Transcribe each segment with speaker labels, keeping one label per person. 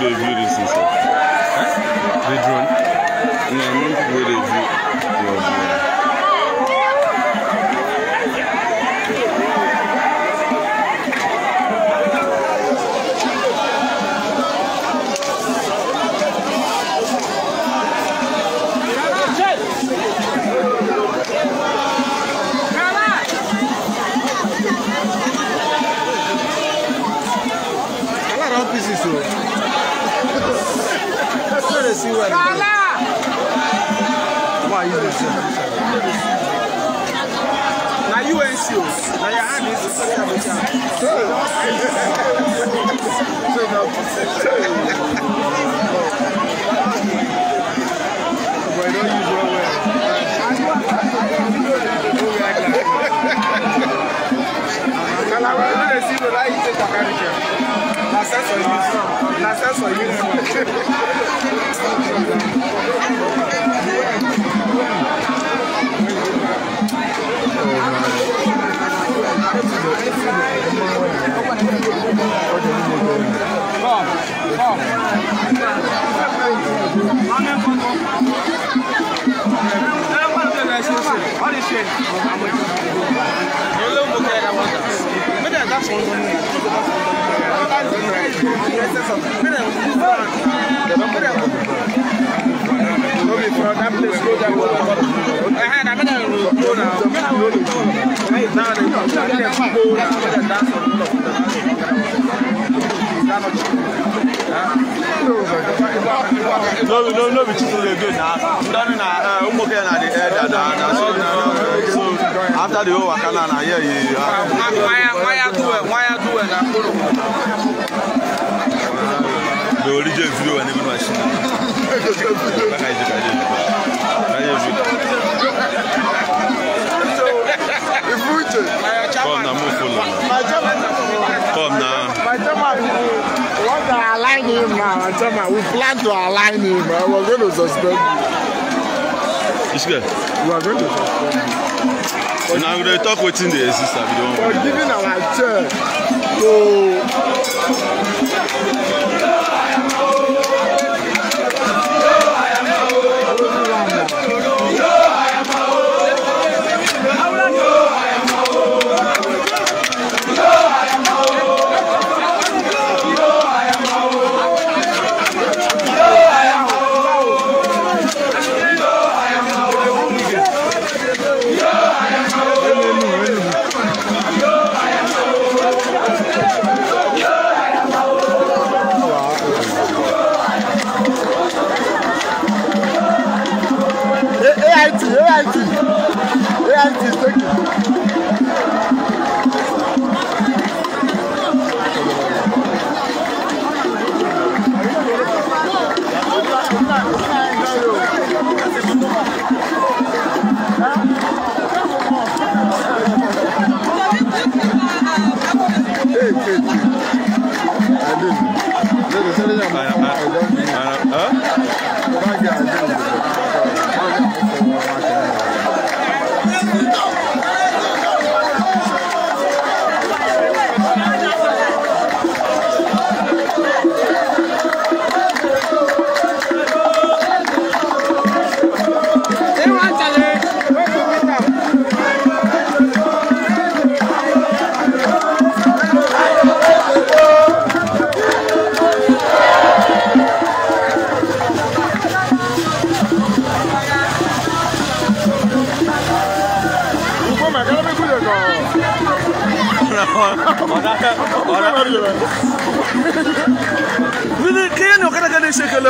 Speaker 1: Des virus, ça. and drone? Yeah, non, Why you this? Now you ain't sure. Now your hand is to suck up you don't Thank you. No, no, no, we just really good now. Done na, um, after the whole wakana na here you. Why, why do it? Why do it? The origin video when even machine. Back our chairman, we plan to align him, but we're going to suspend him. It's good. We're going to suspend him. Now going to talk wetin dey exist abi don. giving our chair to Thank you. من كاين وقرا كان يشكل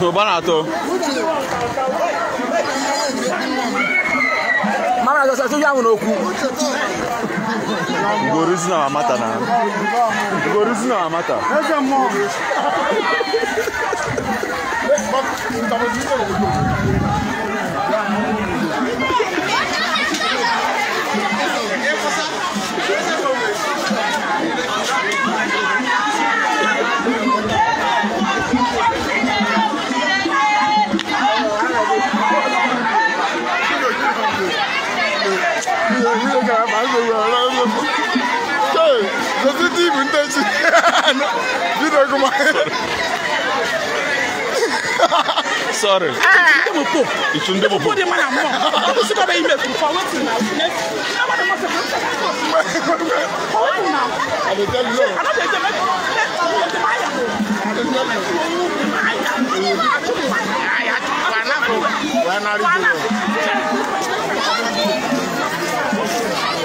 Speaker 1: No banato. Mama na sasa tuja mu oku. Goruzi na mata na. Goruzi na mata. Ese mo. Ba, ta Je te dis, vous ne t'en Dis-le comment. Sorry. Ah, mo po. Itu nde de mana mo. Mo si ko de mo se ko se ko. Forward now. I dey tell you. I no dey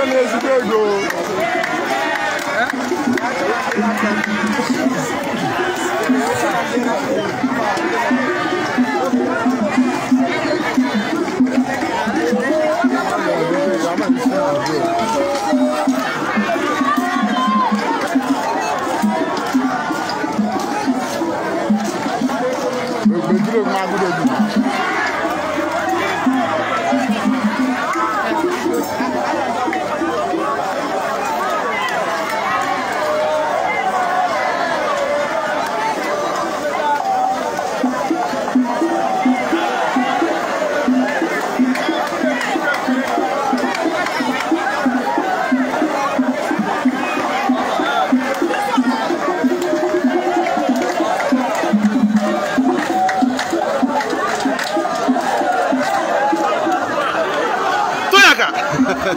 Speaker 1: Ẹ ní ezigbo ego.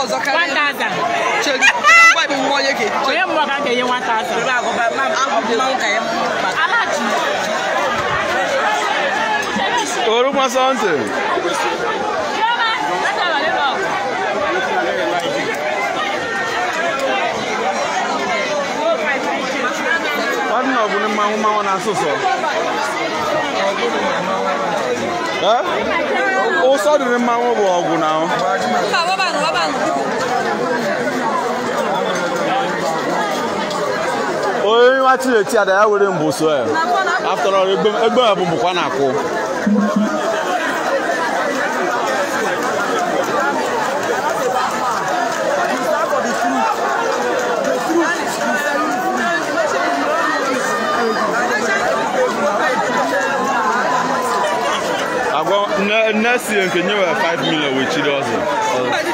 Speaker 1: ọzọ karịa 1000 cheri ngwa ibe nwa onye ga onye mmụọ ka ga-enye 1000 oruma something nwadị na ọ bụrụ mmanwụ mmanwụ na asụsụ ụsọ dịrị mmanwụ bụ ọgwụ na onye nwa chireti ada ya were mbụ so ya after all egbe ya bụ bụkwa na-akwụ agwa nne si nke nyewe 5 million wee ọzọ